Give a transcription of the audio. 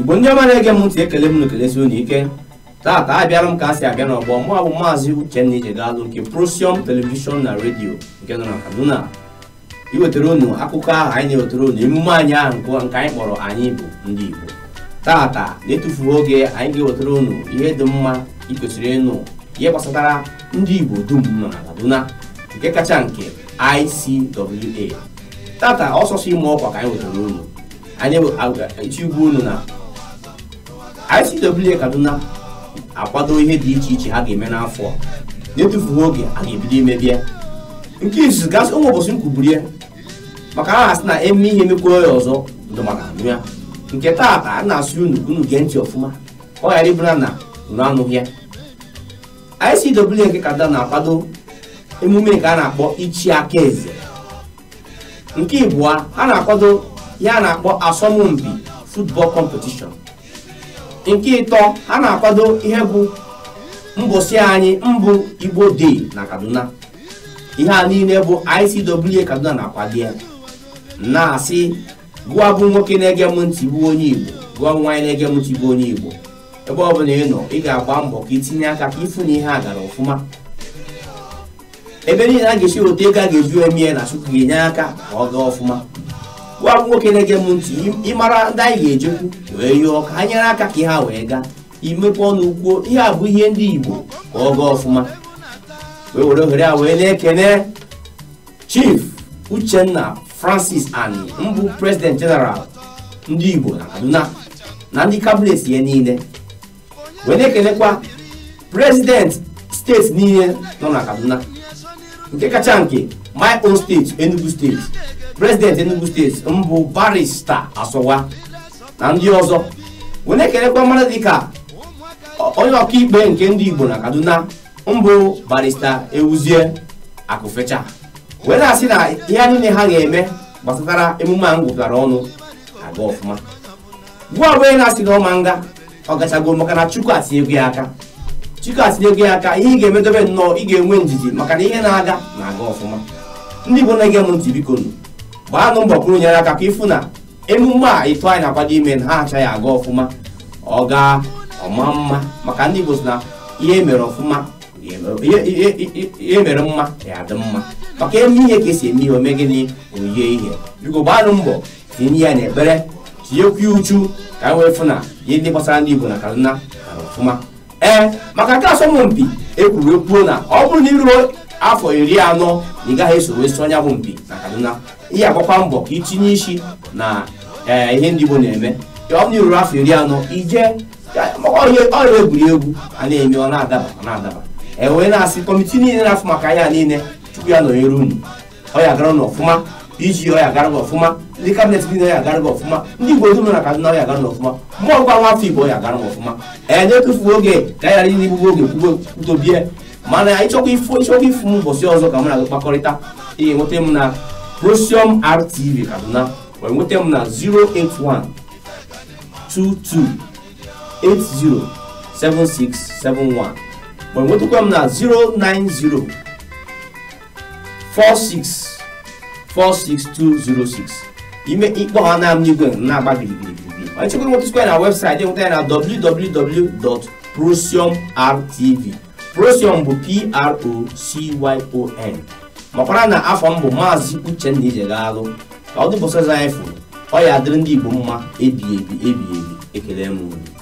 igbo ndị ọma na-ege m ntị ekele m n'ekelesi unu ike taata abịara m ka a si abịa n'ọgbọ mụ bụ maazị uchenna ijegalụ nke prosium telivishọn na redio nke nọ na kaduna iwetara unu akụkọ ahụ anyị na-ewetara unu emume anyị ahụ nke anyị kpọrọ anyị bụ ndị igbo taata na-etufuo oge anyị ga-ewetara unu ihe dị mma ikwesịrị ịnụ ihe gbasatara ndị igbo dum nọ na kaduna nke kacha nke ICWA tata ọsọsọ ime ọkwa ka anyị wetara unu anyị ichi ugwu unu na ICWA Kaduna akwado ihe dị iche iche ha ga-eme n'afọ na-etufughị oge a ga-ebido imebi nke izu gasị ụmụ ụbọchị m maka ha asị na eme ihe emekwuo ya ọzọ ndụ anụ ya nke taata a na-asụ unu unu gee ntị ọfụma ọ ghara ịbụra na unu anụghị ya ICWA nke Kaduna na-akwado emume nke a na-akpọ ichi aka eze nke ịbụa a na-akwado ya na-akpọ asọmpi football competition nke ịtọ ha na-akwado ihe bụ mbọsị anyị mbụ igbo dey na kaduna ihe a niile bụ ICWA kaduna na-akwado ya na-asị gụọ bụ nwoke na-ege m ntị bụ onye igbo gụọ nwaanyị na-ege m ntị bụ onye igbo ebe ọ bụla ị nọ ị ga-agba mbọ ka itinye aka ka ịfụ na ihe a gara ọfụma ebe niile a ga-esi otu ego a ga-eju emie na Chukwu ga-enye aka ka ọ gaa ọfụma gwa nwoke na-ege m ntị ịmara ndị anyị ga-ejekwu wee yụọ ka ha nyere aka ka ha wee gaa imepe ọnụ ugbo ihe a bụ ihe ndị Igbo ka ọ gaa ọfụma wee were ohere a wee na-ekene Chief Uchenna Francis and mbụ President General ndị Igbo na Kaduna na ndị kabinet ya niile wee na-ekenekwa President steeti niile nọ na Kaduna nke kacha nke my own steeti Enugu steeti prezidenti enugu steeti mbụ barista asọwa na ndị ọzọ wee na-ekelekwa dị dịka onye ọkaikpe nke ndị igbo na kaduna mbụ barista ewuzie akụfecha wee na-asị na ihe niile ha ga-eme gbasatara emume a ngwụtara ọnụ aga ọfụma gwa onye na-asị na ọma nga ọ gachago maka na chukwu atinyego ya aka chukwu atinyego ya aka ihe ị ga-emedobe nnọọ ị ga-enwe njiji maka na ihe na-aga na-aga ọfụma ndị igbo na-ege m ntị biko gbaanụ mbọ kwuru nyere aka ka ịfụ na emume a ịtụ anyị na-akwado ime ha achaghị aga ọfụma ọ gaa ọma mma maka ndị Igbo si na ihe mere ọfụma ihe mere mma ya adị mma maka eme ihe ka esi eme ihe ome gịnị oyie ihe biko gbaanụ mbọ tinye ya n'ekpere tinyekwa uchu ka anyị wee fụ na ihe ndị gbasara ndị Igbo na Kaduna gara ọfụma ee eh, maka nke asọmpi ekwuru ekwuo na ọ bụrụ na iruo afọ iri anọ na ị gaghị esoro esi ọnya bụ mpi na kaduna ihe agbakwa mbọ ka itinye isi na ee ihe ndị Igbo na-eme ọ na ruru afọ iri anọ ije ọrịa egwuregwu a na-eme ọ na-adaba ọ na-adaba e wee na-asị kọmitii niile na-afụ maka anya niile chukwu ya nọnyere unu ọ ya gara n'ọfụma ọfụma iji ọ ya gara gị ọfụma ndị kabinet dị na ya gara gị ọfụma ndị Igbo dum na Kaduna ọ ya gara n'ọfụma mmụọ gwa nwafọ Igbo ọ ya gara n'ọfụma ee nye tụfuo oge ka ya ghara na igbugbo oge kwuo mana ịchọkwa ifu m ụbọchị ọzọ ka mụ na kpakọrịta ị enweta m na Prosium RTV Kaduna wee nweta m na 081 22 80 7671 wee nwetakwa m na 090 46 46206 ime ikpọ ha na n'igwe na-agba biribiribiri ma ịchọkwa nwetụkwa na webụsaịtị nweta ya na www.prosiumrtv procyon bụ p-r-o-c-y-o-n makwara na afọ m bụ maazị uchenna ijegalụ ka ọ dụbụsazanyị fụrụ ọ ya adịrị ndị igbo mma ebi ebi ebi ekele m unu